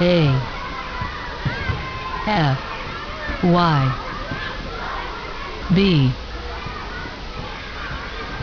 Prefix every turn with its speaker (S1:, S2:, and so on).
S1: A F Y B